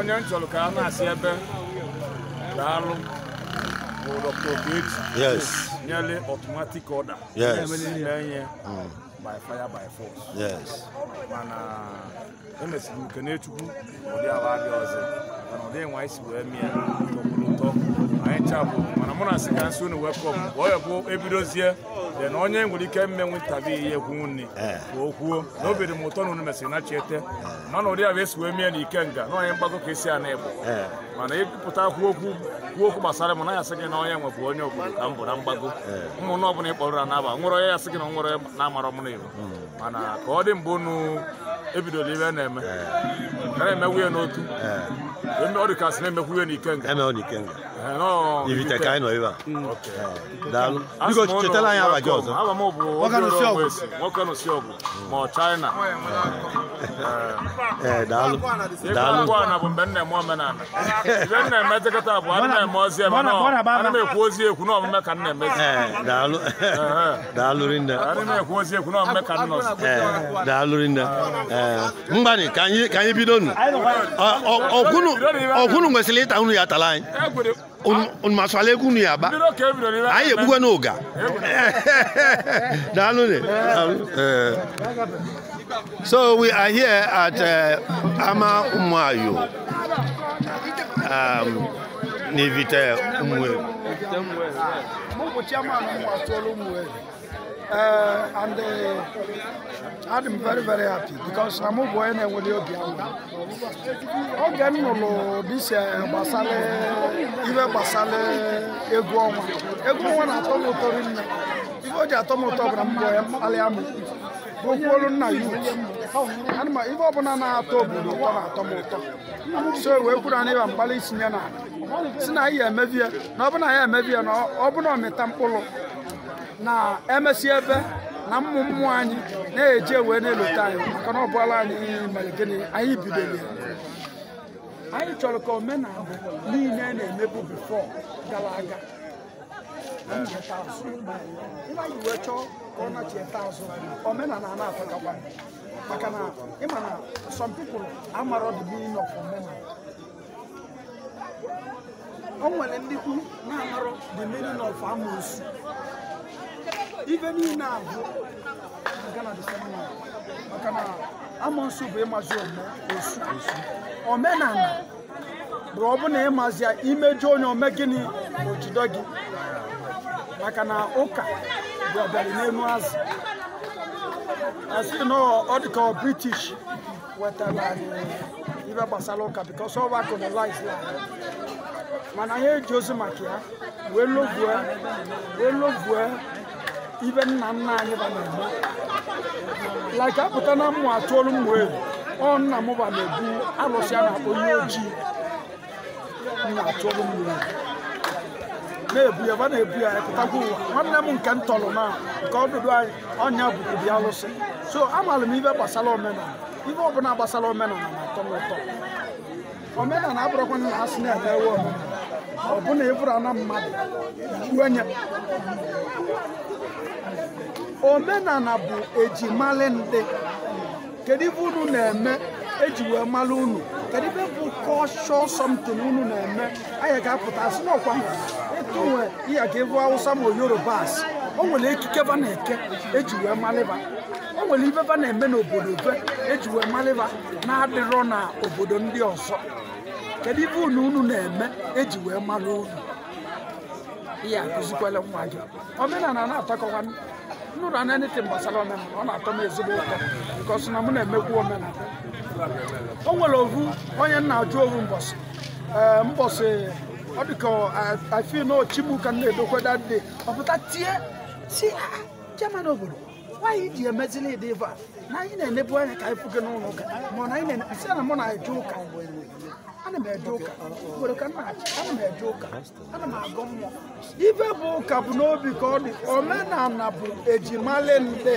onye nchọrọ ka a na-asị ebe daalụ bụ Dr. Okechi yes nyere automatic order yes na-enye by fire by force yes mana emesiri m kene ụdị ala abịa ọzọ mana ụdị nwa isi wee mie ọkwụrụ ụtọ anyị chabụ mana mụ na asị ka nsi unu welcome bụ ebidozie na onye nwere ike mmenwu ihe ekwu nri ka o kwuo na eh. o m ụtọ na unu mesịrị na chiete eh. mana ụdị a esi wee mie na ikenga na onye mgbago ka esi ana igbo eh. mana ịpụta kwuo okwu kwuo okwu gbasara m na ya sị gị na onye nwebụ onye obodo ka m bụ na mgbago ụmụnụ ọbụla ịkpọrọ na naba nwere onye ya sị gị na nwere na-amara m na igbo hmm. mana ka ọ dị mgbe unu ebidola ibe na-eme na-emewuye n'otu ọ dịkasị na-emekwu ihe na ikenga Ivite ka anyị nọ a daalụ biko chetala anyị abaji ọzọ nwoke nụsi ọgụ ma ọ China ee daalụ daalụ na bụ mgbe nna eme omenala ibe nna emejekọta bụ ana eme ozi eme ana m ekwu ozi ekwu na ọmụme ka nna emezi daalụ daalụ rinne ana m ekwu ozi ekwu na ọmụme ka daalụ ya tala anyị onumasualeku nu yaba anyi ebuwe n'oga daalụ ne so we are here at uh, ama umuayo um, n'ivite umwe. Uh, and uh, I'm very, very happy because I'm going to be able to Oge m nụrụ dise gbasara ibe gbasara egwu ọnwa egwu ọnwa na-atọ m ụtọ rinne ibe o ji atọ bụ na mbọ ya mkpalịa m gụkwuolu nna ya anụma ibe na na-atọ wee na ịba mgbalị itinye na si na ya emebie na ọbụna ya na ọbụna ọmịta na-emesi ebe na m'mụ m'mụ anyị na eje wee na-elota anyị maka na ọ bụla anyị mere gịnị anyị bidoro anyị chọrọ ka omenala niile na-emebu bifọ gara aga omenala a na-atakakwa maka na ịma na some people amara o nwere ndị ife niile oh, a bụ maka na amonsu bụ ịmazi osu omenala bụ na ịmazi ya imeju onye ome gịnị bụ jido gị maka na ụka bụ ọbịara n'elu azụ asị na ọ dịka ọ british wetara ibe gbasara ụka bikos ọ bụ colonize mana eji ozi ya wee ibe nna nna anyị ba na-eme like apụta na mmụ atụolu mmụ elu ọ nna m ba na-ebu alụsị na-akpọ ihe ojii nna atụolu mmụ elu na-ebu ya ba na-ebu ya pụtakwa ụwa nwanne m nke m tọrọ na nke ọdụdụ anyị ọnya bụkụbi alụsị so amaara m ibe gbasara omenala ibe ọbụla gbasara omenala na-atọ m ụtọ omenala abụrụkwana na asị na-emewe omenala ọbụna ịbụrụ ana mmadụ wenye omenala bụ ejimali ndị kedu ibe unu na-eme eji wee mara unu kedu ibe bụ kọshọ somtin unu na-eme anyị ga-apụta asị n'ọkwa ịtụ nwe ihe ka ịbụ awụsa ma yoruba asị o nwere ekike ba na-eke eji wee malịba o nwere ibe ba na-eme n'obodo be eji wee malịba na-adịrọ na obodo ndị ọzọ kedu ife unu unu na-eme eji wee mara unu ihe akụzikwala nwa gị omenala na-atọkọwa nnụrụ anya netin gbasara omenala ọ na-atọ m ezigbo ụtọ nke ọsụ na m na-emekwu omenala o nwere ovu onye nna ajụ ovu mbọsị mbọsị ọ dịka afin ochimuka na-edokweda dị ọpụta tie si ha chairman obodo nwaanyị ji emezili ịdị ife a na anyị na-enebu anya ka anyị fuge n'ụlọ ụka mana anyị na-enepụsi na mụ na-eje ụka ana m eje ụka nwere uh, uh, ka nna ana m eje ụka ana m agụ mmụọ ibe bụ ụka bụ n'obi ka ọ dị omenala bụ ejimale nde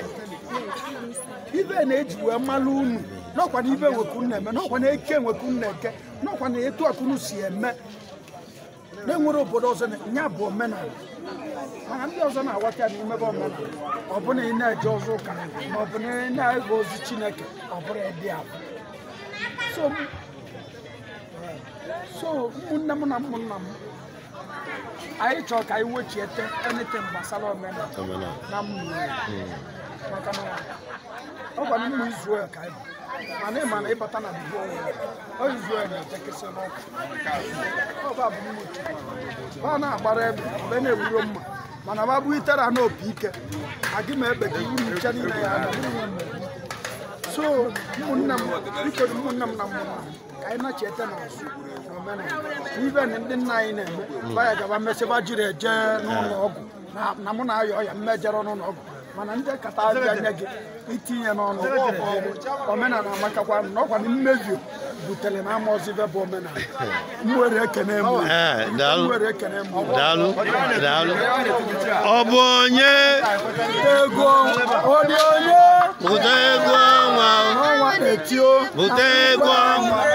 ibe na-eji wee mmalụ unu n'ọkwa na ibe nwekunna eme n'ọkwa na eke nwekunna eke n'ọkwa na etu akụnụ si eme na-enwere obodo ọzọ ya bụ omenala mana ndị ọzọ na-aghọta na imebe omenala ọ bụrụ na ị na-eje ọzọ ụka ma ọ bụ na ị na-ege ozi Chineke ọ bụrụ ịdị abụ so ụmụnne m na ụmụnna m anyị chọrọ ka anyị wechiete anything gbasara omenala na mmụọ na ọ gwara mmụ ka mana na ịbata na ọ Izrel na n'ọkụ ọba bụ ọ na-agbara ebe mgbe na-ewuro mma mana ọ bụ itera na opi ike agị ma egbe ka iwu nche niile ya so ụmụnne m na ụmụnne m na ka anyị na-echeta na ibe na ndị nna anyị na-eme hmm. baya gaba mesịba jiri eje n'ụlọ ọgwụ na mụ na-ayọ ọya mmejere n'ụlọ ọgwụ mana ndị kata abịa anya gị itinye n'ọnụ omenala amakakwa na ọkwa na butere na bụ omenala nwere ekene eh, daalụ daalụ ọ bụ onye ego onye bute ego ọnwa bute ego ọnwa